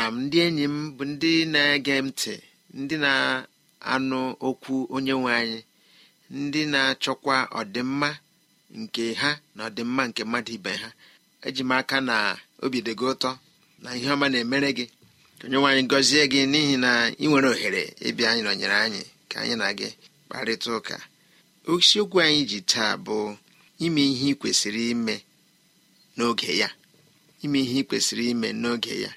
na ndị enyi m bụ ndị na-ege ntị ndị na-anụ okwu onye nwe anyị ndị na-achọkwa ọdịmma nke ha na ọdịmma nke mmadụ ibe ha eji m aka na obi dị gị ụtọ na ihe ọma na-emere gị ka onye gọzie gị n'ihi na ị nwere ohere ịbịa anyị nọnyere anyị ka anyị na gị kparịta ụka isiokwu anyị ji taa bụ ime ihe ị ime n'oge ya ime ihe ị kwesịrị ime n'oge ya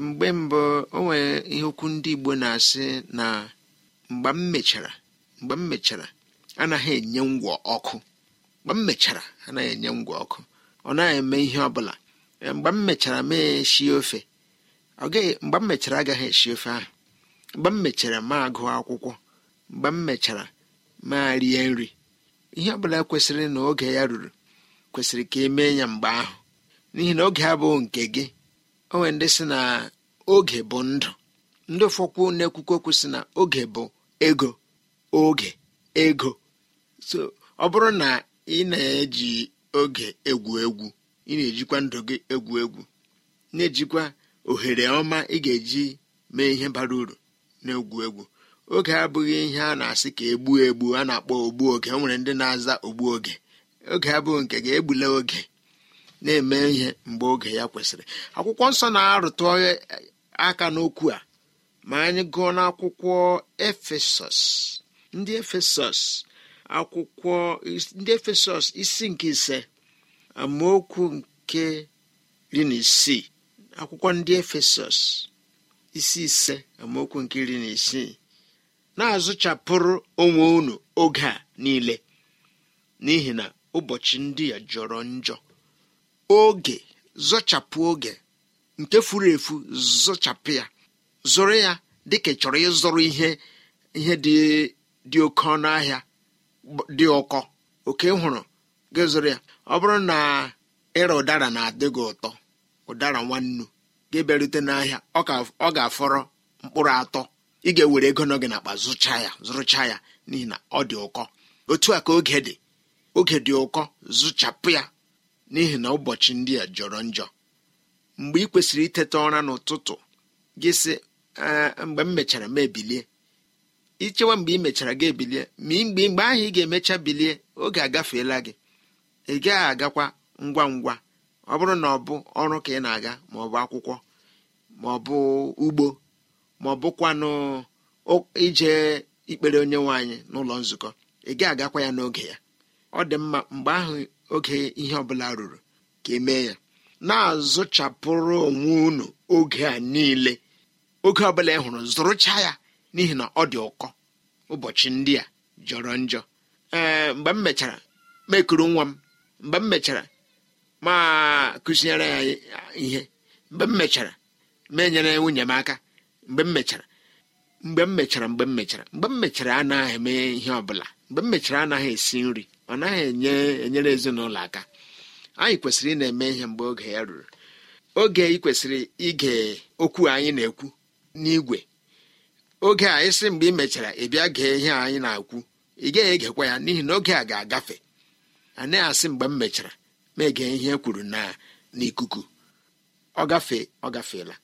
mgbe mbụ o nwere ihe okwu ndị igbo na-asị na mgbe m mechara mgbe m mechara anaghị enye ngwọ ọkụ mgbe m mechara anaghị enye ngwọ ọkụ ọ naghị eme ihe ọ bụla e, mgbe m mechara mee esi ofe ọ gaghị mgbe m mechara agaghị esi ofe ahụ mgbe m mechara ma agụ akwụkwọ mgbe m mechara ma rie nri ihe ọbụla kwesịrị na oge ya ruru kwesịrị ka emee mee ya mgbe ahụ n'ihi na oge abụghị nke gị onwe ndị si na oge bụ ndụ ndị ụfọkwụ na-ekwukwu okwu si na oge bụ ego oge ego so ọ bụrụ na ị na-eji oge egwu egwu ị na-ejikwa ndụ gị egwu egwu na-ejikwa ohere ọma ị ga-eji mee ihe bara uru na-egwu egwu oge abụghị ihe a na-asị ka egbuo egbu a na-akpọ ogbu oge o nwere ndị na-aza ogbu oge oge abụghị nke ga-egbula oge na-eme ihe mgbe oge ya kwesịrị akwụkwọ nsọ na-arụtụ aka n'okwu a ma anyị gụọ n'akwụkwọ efesọs ndị efesọs akwụkwọ ndị isi nke ise amaokwu nke iri na isii akwụkwọ ndị efesọs isi ise amaokwu nke iri na isii na-azụchapụrụ onwe unu oge a niile n'ihi na ụbọchị ndị a jọrọ njọ oge zọchapụ oge nke furu efu zọchapụ ya zụrụ ya dịka ị chọrọ ịzụrụ ihe ihe dị oke ọnụ ahịa dị ụkọ oke hụrụ gị zụrụ ya ọ bụrụ na ịra ụdara na-adị gị ụtọ ụdara nwannu gị bịarute n'ahịa ọ ga-afọrọ mkpụrụ atọ ị ga-ewere ego nọ gị n'akpa zụcha ya zụrụcha ya n'ihi na ọ dị ụkọ otu a ka oge dị oge dị ụkọ zụchapụ ya n'ihi na ụbọchị ndị a jọrọ njọ mgbe ị kwesịrị iteta ụra n'ụtụtụ gị sị mgbe m mechara m ebilie ichewa mgbe ị mechara gị ebilie ma mgbe mgbe ahụ ị ga-emecha bilie oge agafeela gị ị gaghị agakwa ngwa ngwa ọ bụrụ na ọ bụ ọrụ ka ị na-aga ma ọ bụ akwụkwọ ma ọ bụ ugbo ma ọ bụkwanụ ije ikpere onye nwe anyị n'ụlọ nzukọ ị gaghị agakwa ya n'oge ya ọ dị mma mgbe ahụ oge ihe ọbụla ruru ka emee ya na-azụchapụrụ onwe unu oge a niile oge ọbụla ị hụrụ zụrụcha ya n'ihi na ọ dị ụkọ ụbọchị ndị a jọrọ njọ ee mgbe m mechara mekuru nwa m mgbe m mechara ma ya ihe mgbe m mechara menyere nwunye m aka mgbe m mechara mgbe m mechara mgbe m mechara mgbe m mechara anaghị eme ihe ọbụla mgbe m mechara anaghị esi nri ọ naghị enye enyere ezinụlọ aka anyị kwesịrị ị na-eme ihe mgbe oge ya ruru oge ị kwesịrị ige okwu anyị na-ekwu n'igwe oge a ịsị mgbe ị mechara ị gee ihe anyị na-ekwu ị gaghị egekwa ya n'ihi na oge a ga-agafe a naghị asị mgbe m mechara ma ege ihe e kwuru na n'ikuku ọ gafee ọ gafeela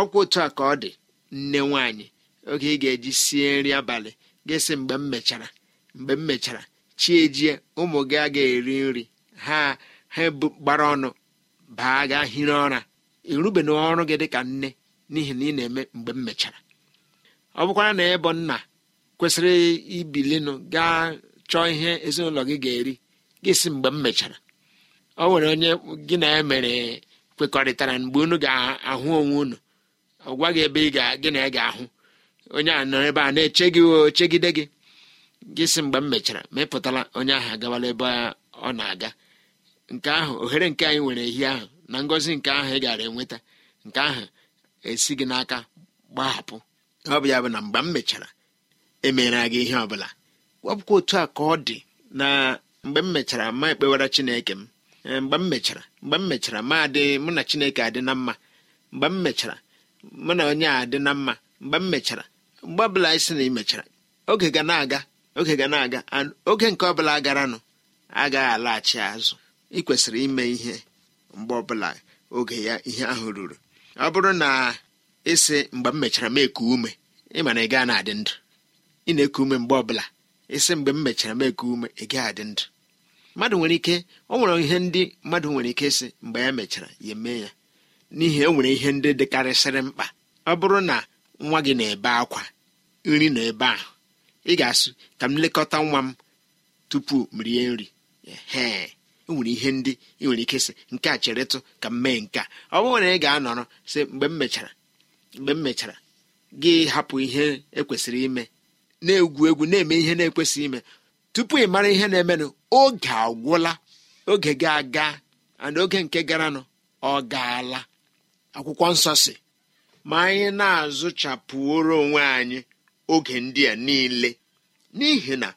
ọkwa otu a ka ọ dị nne nwaanyị oge ị ga-eji sie nri abalị ga-esi mgbe m mechara mgbe m mechara chiejie ụmụ gị agaghị eri nri ha ha gbara ọnụ baa gaa hiri ụra irube na ọrụ gị dị ka nne n'ihi na ị na-eme mgbe m mechara ọ bụkwara na ịbụ nna kwesịrị ibilinu gaa chọọ ihe ezinụlọ gị ga-eri gị si mgbe m mechara ọ nwere onye gị na ya mere kwekọrịtara mgbe unu ga-ahụ onwe unu ọ gwaghị ebe ị ga gị na ya ga-ahụ onye a nọ ebe a na-eche gị chegide gị gị si mgbe m mechara ma ị onye ahụ agabala ebe ọ na-aga nke ahụ ohere nke anyị nwere ehi ahụ na ngọzi nke ahụ ị gara enweta nke ahụ esi gị n'aka gbahapụ ọ bụ ya bụ na mgbe m mechara emere gị ihe ọbụla wepụkwa otu a ka ọ dị na mgbe m mechara ma ekpewara chineke m e, mgbe m mechara mgbe m mechara ma adị mụ na chineke adị na mma mgbe m mechara mụ na onye a adị na mma mgbe m mechara mgbe ọbụla anyị sị na ị mechara oge ga na-aga oge ga na-aga oge nke ọbụla garanụ agaghị alaghachi azụ ị kwesịrị ime ihe mgbe ọbụla oge ya ihe ahụ ruru ọ bụrụ na ịsị mgbe m mechara m ume ịma na ị gaa na-adị ndụ ị na-eku ume mgbe ọbụla ịsị mgbe m mechara m eku ume ị gaa adị ndụ mmadụ nwere ike ọ nwere ihe ndị mmadụ nwere ike ịsị mgbe ya mechara ya emee ya n'ihi e nwere ihe ndị dịkarịsịrị mkpa ọ bụrụ na nwa gị na-ebe akwa nri na ebe ahụ ị ga-asụ ka m lekọta nwa m tupu m rie nri ee enwere ihe ndị ị e nwere ike sị nke a cheretụ ka m mee nke a ọ bụrụ na ị ga-anọrọ sị mgbe m mechara mgbe m mechara gị hapụ ihe ekwesịrị ime na-egwu egwu na-eme ihe na-ekwesịghị ime tupu ị mara ihe na-emenụ oge agwụla oge ga-aga ana oge nke garanụ ọ gaala akwụkwọ nsọ si ma anyị na-azụchapụoro onwe anyị oge ndị a niile n'ihi na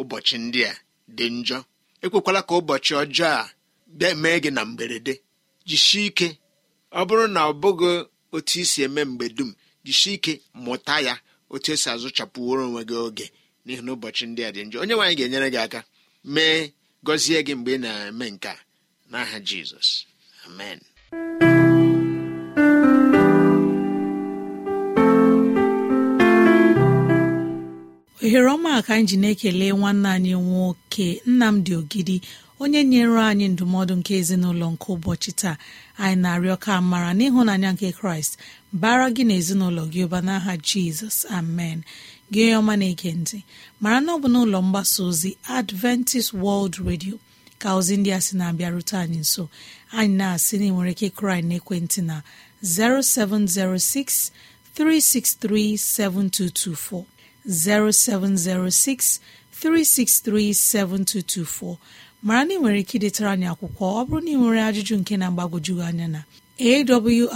ụbọchị ndị a dị njọ ekwekwala ka ụbọchị ọjọọ a mee gị na mberede jisie ike ọ bụrụ na ọ bụghị otu isi eme mgbe dum jisie ike mụta ya otu esi azụchapụworo onwe gị oge n'ihi na ụbọchị ndị a dị njọ onye nwaanyị ga-enyere gị aka mee gọzie gị mgbe ị na-eme nke a n'aha Jizọs amen ohere ọma ka anyị ji na-ekele nwanne anyị nwoke nnamdị ogidi onye nyere anyị ndụmọdụ nke ezinụlọ nke ụbọchị taa anyị na-arịọ ka mara n'ịhụnanya nke kraịst bara gị na ezinụlọ gị ụba n'aha jizọs amen gị onye ọma na-ege ntị mara na ọ bụ n'ụlọ mgbasa ozi adventist world radio ka ozi ndị a sị na-abịarute anyị nso anyị na-asị na nwere ike kraị na ekwentị na 0706 363 7224 07063637224 mara na ị nwere ike idetara anyị akwụkwọ ọ bụrụ na ị nwere ajụjụ nke na-agbagojugị anya na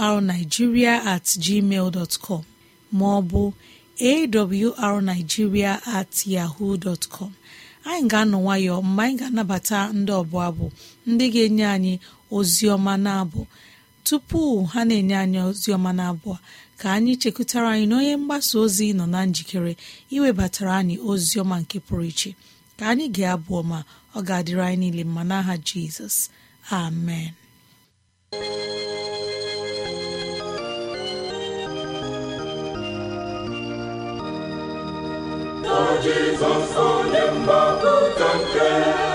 awrnigeria at gmail dot com ma ọ at yahoo dot anyị ga-anọ nwayọ mgbe anyị ga-anabata ndị ọbụ abụ ndị ga-enye anyị ozi ọma na abụ tupu ha na-enye anyị ozi ọma na abụ ka anyị chekụtara anyị na onye mgbasa ozi nọ na njikere iwebatara anyị ozi ọma nke pụrụ iche ka anyị ga-abụ ọma ọ ga-adịrị anyị niile mma n'aha jizọs amen onye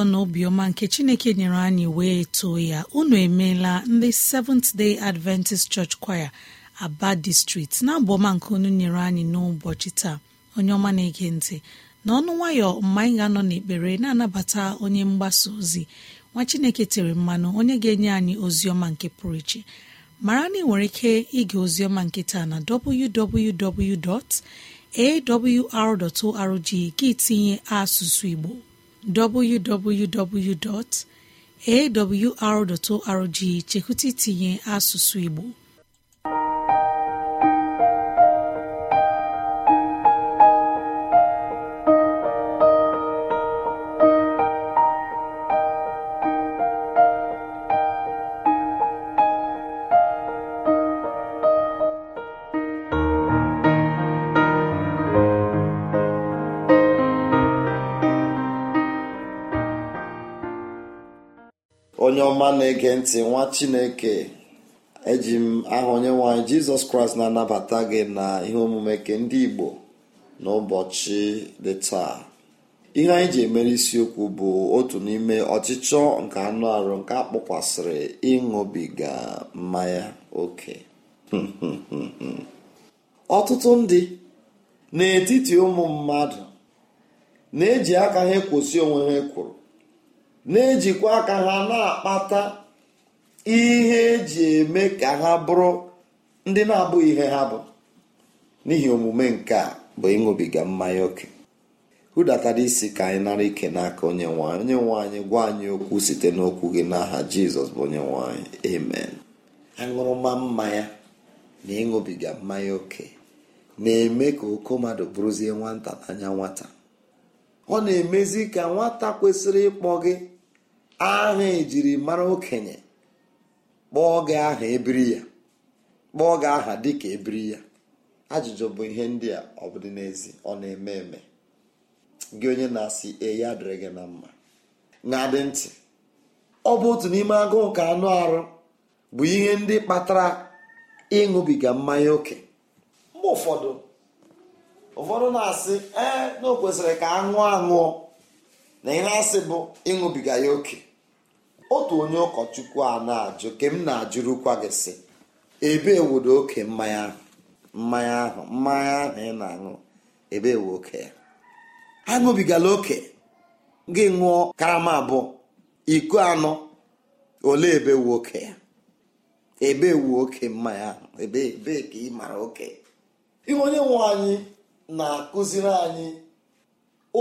nsọ na obiọma nke chineke nyere anyị wee too ya unu emeela ndị Seventh Day Adventist Church Choir Aba distrikt na abụọma nke unu nyere anyị n'ụbọchị taa onye ọma na-ege ntị na ọnụ nwayọ mma anyị ga-anọ n'ekpere na-anabata onye mgbasa ozi nwa chineke tere mmanụ onye ga-enye anyị ozi ọma nke pụrụ iche mara na ị nwere ike ige ozi ọma nke taa na www.awr.org gị tinye asụsụ Igbo www.awr.org chekwụta itinye asụsụ Igbo onye ọma na-ege ntị nwa chineke eji m aha onye nwaanyị jizọs kraịst na-anabata gị na ihe omume nke ndị igbo n'ụbọchị dị taa ihe anyị ji emere isiokwu bụ otu n'ime ọchịchọ nke anụ arụ nke akpọkwasịrị ịṅụbiga mmanya oke ọtụtụ ndị n'etiti ụmụ mmadụ na-eji aka ha ekwosi onwe ha e kwuru na-ejikwa aka ha na-akpata ihe eji eme ka ha bụrụ ndị na-abụghị ihe ha bụ n'ihi omume nke a bụ ịṅụbiga mmanya oke hụdatara isi ka anyị nara ike n'aka onye nwanyị onye nwanyị gwa anyị okwu site n'okwu gị n'aha jizọs bụ onye nwanyị amen aṅụrụma mmanya na ịṅụbiga mmanya oke na-eme ka oko mmadụ bụrụzie nwata n'anya nwata ọ na-emezi ka nwata kwesịrị ịkpọ gị aha ejiri mara okenye kpọọ gị aha ebiri ya kpọọ gị aha dịka ebiri ya ajụjụ bụ ihe ndị a ọ bụ dị n'ezi ọ na-eme eme gị onye na-asị e adịrị dịrị gị na mma na-adị ntị ọ bụ otu n'ime agụụ ka anụ arụ bụ ihe ndị kpatara ịṅụbiga mmanya oke mgbe ụfọdụ ụfọdụ na-asị ee na o kwesịrị ka aṅụọ aṅụọ na ị na-asị bụ ịṅụbiga ya oke otu onye ụkọchukwu a na-ajụ ke m na-ajụrụkwa gị sị ebe wodo oke mmanya ahụ mmanya ahụ mmanya ahụ ị na-aṅụ ebe ewe oke ya aṅụbigala oke gị ṅụọ karama abụọ iko anọ ole ebe ewe oke ya ebe ewu oke mmanya ahụ ebe ka ị mara oke ihe onye nwe anyị na-akụziri anyị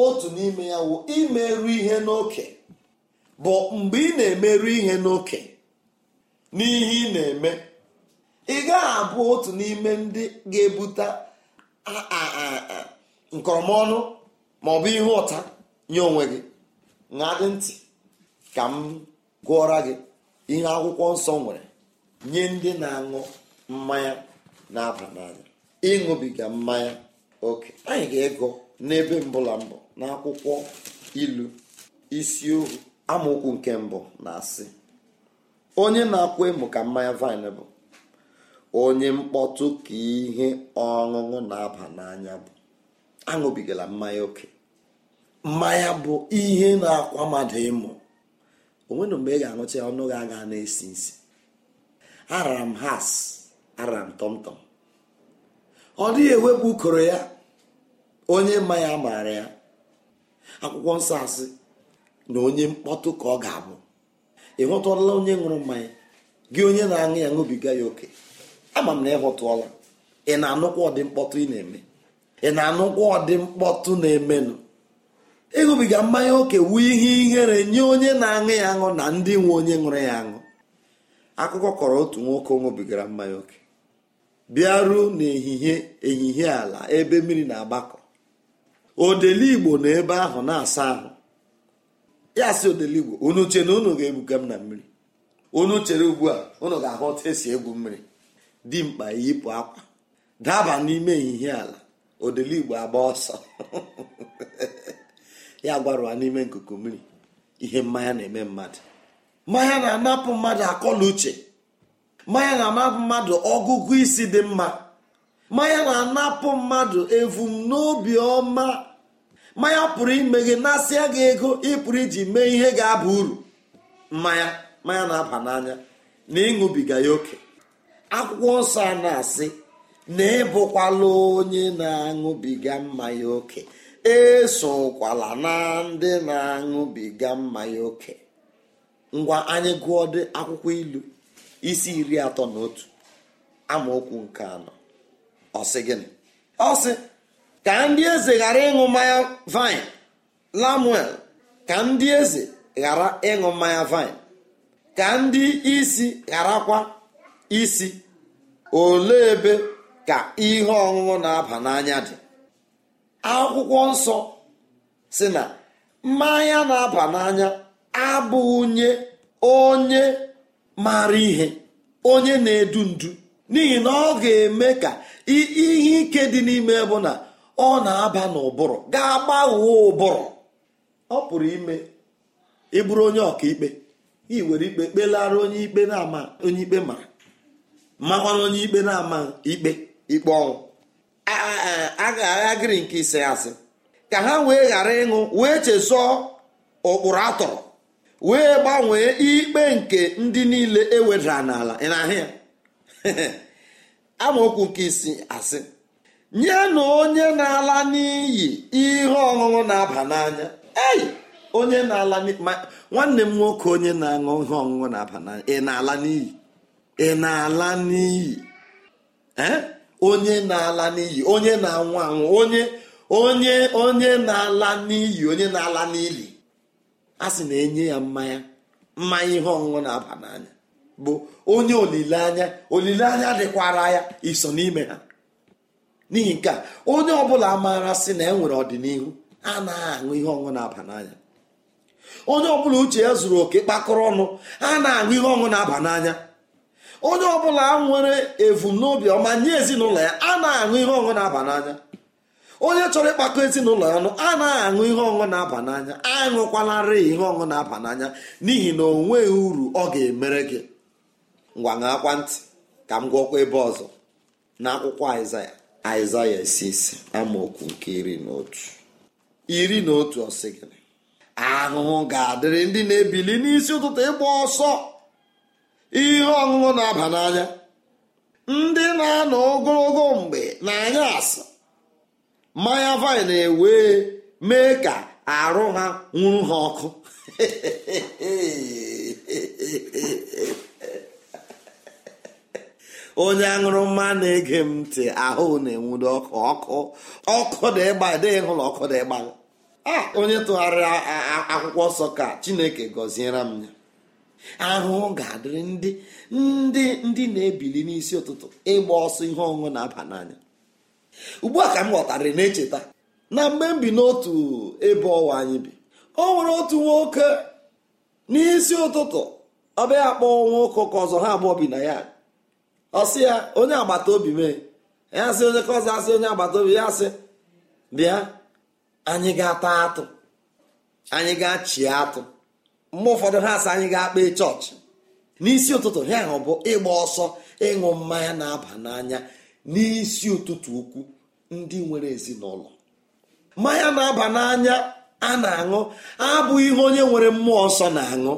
otu n'ime ya wụ imerụ ihe n'oke bụ mgbe ị na-emerụ ihe n'oke n'ihe ị na-eme ị gaghị abụ otu n'ime ndị ga-ebute nkọrọmọnụ ma ọ bụ ihe ụta nye onwe gị ṅadị ntị ka m gụọra gị ihe akwụkwọ nsọ nwere nye ndị na-aṅụ mmanya na-aba n'anya ịṅụbiga mmanya oke anyị ga-ego n'ebe mbụla mbụ n'akwụkwọ ilu isi ohu amaokwu nke mbụ na-asị onye na-akwụ ịmụ ka mmanya vaịn bụ onye mkpọtụ ka ihe ọṅụṅụ na-aba n'anya bụ aṅụbigala mmanya oke mmanya bụ ihe na-akwa mmadụ ịmụ onwere mgbe ị ga-aṅụcha ọnụ gị aga na-esi nsi arara m has arara m tọmtọm ọ dịghị ewepụ ukoro ya onye mmanya maara ya akwụkwọ nsọ asị na onye mkpọtụ ka ọ ga-abụ ị hụtụọla onye ṅụrụ mmanya gị onye na-aṅụ ya ṅụbiga ya oke ama m na ị hụtụọla ị na-anụkwa ọdị mkpọtụ ị na-eme ị na-anụkwa ọdị mkpọtụ na-emenụ ịṅụbiga mmanya oke wu ihe ihere nye onye na-aṅụ ya aṅụ na ndị nwe onye ṅụrụ ya aṅụ akụkọ kọrọ otu nwoke ṅụbigara mmanya oke bịaruo n'ehihie ehihie ala ebe mmiri na-agbakọ odeli igbo na ebe ahụ na-asa ahụ ya si odeligbo unu che na unu ga-ebuga m na mmiri unu chere ugbu a unu ga-ahụ esi egwu mmiri dị mkpa yipụ akwa daba n'ime ehihie ala odeligbo agba ọsọ ya gwarụwa n'ime nkuku mmiri ihe mmanya na-eme mmadụ mmanya na-anapụ mmadụ akọla uche mmanya na-anapụ mmadụ ọgụgụ isi dị mma mmanya na-anapụ mmadụ evumnobi ọma mmanya pụrụ ime gị nasịa gị ego ị pụrụ iji mee ihe ga-aba uru mmanya mmanya na-aba n'anya na ịṅụbiga ya oke akwụkwọ nsọ a na-asị na ịbụkwala onye na-aṅụbiga mmanya oke esokwala na ndị na-aṅụbiga mmanya oke ngwa anyị gụọ akwụkwọ ilu isi iri atọ na otu amaokwu nke anọ ọsị gịnị ọsị ka ndị eze ghara ịṅụ mmanya vine lamuel ka ndị eze ghara ịṅụ mmanya vine ka ndị isi ghara kwa isi olee ebe ka ihe ọṅụṅụ na-aba n'anya dị akwụkwọ nsọ si na mmanya na-aba n'anya abụghị nye onye maara ihe onye na-edu ndu n'ihi na ọ ga-eme ka ihe ike dị n'ime bụ na ọ na-aba n'ụbụrụ ga-agbagho ụbụrụ ọ pụrụ ime ịbụrụ onye ọkaikpe ị were ikpe kpelara onye ikpe na-ama onye ikpe ma makwana onye ikpe na-ama ikpe ikpe ọnwụ a nke ise asị ka ha wee ghara ịṅụ wee chesọọ ụkpụrụ atọrọ wee gbanwee ikpe nke ndị niile ewedara n'ala amaokwu nke isi asị nyenụ onye na-ala n'iyi ihe ọṅụṅụ na-aba n'anya ei onye na-ala nwanne m nwoke onye na-aṅụ ihe ọṅụṅụ na-aba n'anya ị na-ala n'iyi ị na-ala n'iyi onye na-ala n'iyi onye na-anwụ anwụ onye onye onye na-ala n'iyi onye na-ala n'ili a sị na-enye ya mmanya mmanya ihe ọṅụṅụ na-aba n'anya bụ onye olileanya olileanya dịkwara ya iso n'ime ha n'ihi nke a onye ọbụla maara sị na e nwere ọdịnihu na aṅụ ihe ọṅụ na-aba n'anya onye ọbụla uche ya zuru oke kpakọrọ ọnụ a na-aṅụ ihe ọṅụ na-aba n'anya onye ọbụla nwere evum ọma nye ezinụlọ ya a na-aṅụ ihe ọṅụ na-aba n'anya onye chọrọ ịkpakọ ezinụlọ ya ọnụ a na-aṅụ ihe ọṅụṅụ na-aba n'anya aṅụkwalarị ihe ọṅụṅụ na-aba n'anya n'ihi na onweghị uru ọ ga-emere gị ngwa ṅakwa ntị ka m gwọkwa ebe ọzọ na akwụkwọ Aịzaya aịzaya isisi amaokwu nke iri na otu iri na otu ọsịgịrị ahụhụ ga-adịrị ndị na-ebili n'isi ụtụtụ ịgba ọsọ ihe ọṅụṅụ na-aba n'anya ndị na-anọ ogologo mgbe na-anya asị mmanya vaịn na-ewe mee ka arụ ha nwụrụ ha ọkụ onye aṅụrụma na-ege m ntị ahụ na-enwudo ọkụ ọkụ ọkụ dị ịgba dịghị hụla ọkụ dị ịgba onye tụgharịrị akwụkwọ nsọ ka chineke gọziere m ya ahụhụ ga-adịrị ndị ndị ndị na-ebili n'isi ụtụtụ ịgba ọsọ ihe ọṅụṅụ na-aba n'anya ugbu a ka m ghọtara na-echeta na mgbe m bi n'otu ebe ọwa anyị bi o nwere otu nwoke n'isi ụtụtụ ọ akpọ kpọọ nwa ụkọ ka ọzọ ha abụọ bi na ya ọsị ya onye agbata obi mee ya sị onye kọzọ asị onye agbata obi ya sị bịa anyị ga-ata atụ anyị ga-achị atụ mgbe ụfọdụ ha asị anyị ga-akpa chọọchị n'isi ụtụtụ ha ahụ bụ ịgba ọsọ ịṅụ mmanya na-aba n'anya n'isi ụtụtụ ukwu ndị nwere ezinụlọ mmanya na-aba n'anya a na-aṅụ abụghị ihe onye nwere mmụọ nsọ na-aṅụ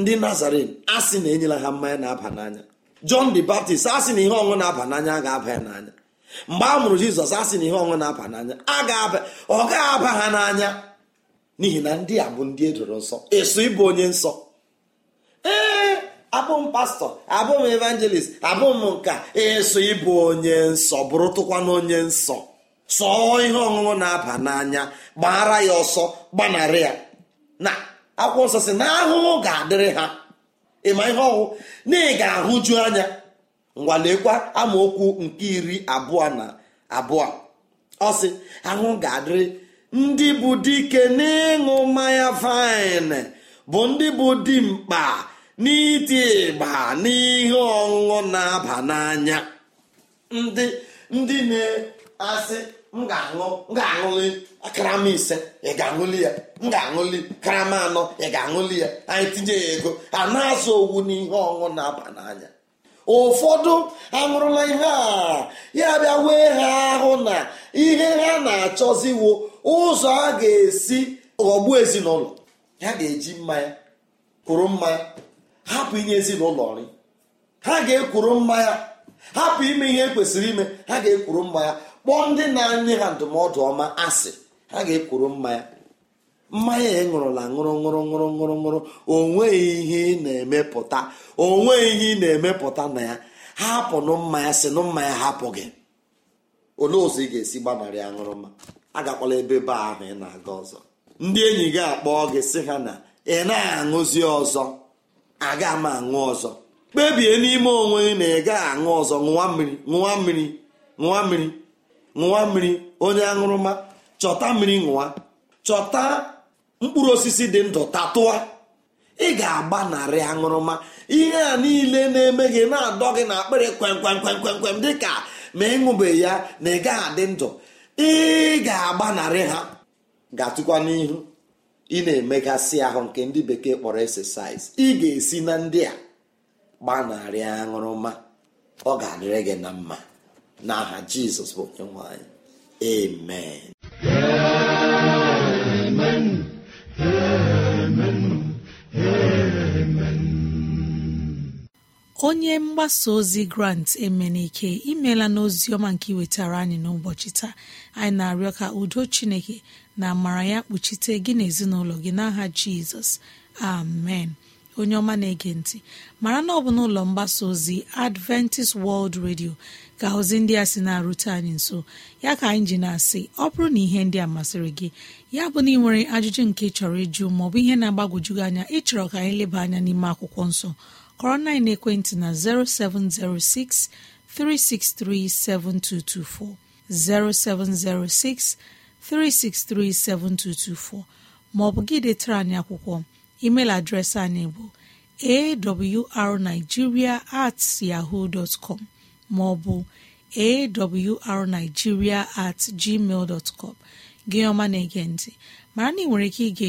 ndị nazarin a na enyela ha mmanya na-aba n'anya John the Baptist asị na ihe ọṅụ na-aba n'anya a ga-aba ya n'anya mgbe a mụrụ Jizọs asị na ihe ọṅụ na-aba n'anya a ga-aba ọ ga-aba ha n'anya n'ihi na ndị a bụ ndị edoro nsọ eso ịbụ onye nsọ ee abụ m pastọ abụ m evangelist abụ m nka eso ịbụ onye nsọ bụrụ tụkwana onye nsọ sọọ ihe ọṅụṅụ na-aba n'anya gbara ya ọsọ gbanarị ya na akwụkwọ nsọ si na ahụhụ ga-adịrị ha ịma ihe ọhụụ na ị ga-ahụju anya ngwalekwa amaokwu nke iri abụọ na abụọ ọsị ahụ ga-adịrị ndị bụ dike n'ịṅụ mmanya vaịn bụ ndị bụ dimkpa n'ịdị ịgba n'ihe ọṅụṅụ na-aba n'anya ndị ndị na-asị m ga-aṅụ m ga-aṅụli karama ise ị ga-aṅụli ya m ga-aṅụli karama anọ ị ga-aṅụli ya anyị tinye ya ego a na-azụ owu n'ihe ọṅụ na-aba n'anya ụfọdụ aṅụrụla ihe a ya bịa wee ha ahụ na ihe ha na-achọziwo ụzọ a ga-esi ọgbu ezinụlọ ha ga-eji mmanya kwuru mmanya hapụ inye ezinụlọ nri ha ga-ekwuru mmanya hapụ ime ihe e kwesịrị ime ha ga-ekwuru mmanya kpọọ ndị na-enye ha ndụmọdụ ọma asị ha ga-ekwuru mmanya mmanya ya e ṅụrụla ṅụrụ ṅụrụ ṅụrụ ṅụrụ ṅụrụ onweghị ihe ị na-emepụta onweghị ihe ị na-emepụta na ya hapụ nụ mmanya sị nụ mmanya hapụ gị olee ụzọ ị ga-esi gbanarị aṅụrụma agakwala ebe be ahụ ị na-aga ọzọ ndị enyi gị akpọ gị sị ha na ị na-aṅụzi ọzọ aga m aṅụ ọzọ kpebie n'ime onwe na ị aṅụ ọzọ ṅụwa mmiri ṅụwa mmiri ṅụwa mmiri ṅụwa mmiri onye aṅụrụma chọta mmiri ṅụwa chọta mkpụrụ osisi dị ndụ tatụa ị ga-agbanarị aṅụrụma ihe a niile na-eme gị na-adọ gị na akpịrị kwem kwem kwem kwem dị ka ma ịṅụbe ya na ị gaghị adị ndụ ị ga-agbanarị ha ga-atụkwa n'ihu ị na-emegasị ahụ nke ndị bekee kpọrọ exercise ị ga-esi na ndị a gbanarị aṅụrụma ọ ga-adịrị gị na mma n'aha jizọs bụ onye nwanyị amen onye mgbasa ozi grant emenike imela n'ozi ọma nke iwetara anyị n'ụbọchị taa anyị na-arịọ ka udo chineke na amara ya kpuchite gị na ezinụlọ gị n'aha jizọs amen onye ọma na-ege ntị mara na ọ bụ n'ụlọ mgbasa ozi adventist world radio ka ozi ndị a sị na-arute anyị nso ya ka anyị ji na-asị ọ bụrụ na ihe ndị a masịrị gị ya bụ na ị nwere ajụjụ nke chọrọ ịjụ maọbụ ihe na-agbagwoju gị anya ịchọrọ ka anyị leba anya n'ime akwụkwọ nsọ kọrọ na ekwentị na 0706 363 7224 0706 363 7224 maọbụ gị detara anyị akwụkwọ email adreesị anyị bụ awrnigeria at yahoo dot maọbụ awrnigeria at gmail dot com gị ọma na-ege ntị mara na ị nwere ike ige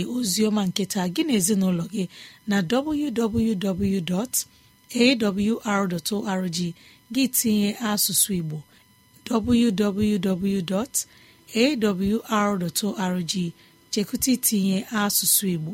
ọma nketa gị na ezinụlọ gị na www.awr.org gị tinye asụsụ Igbo www.awr.org chekwụta itinye asụsụ Igbo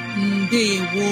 Ndewo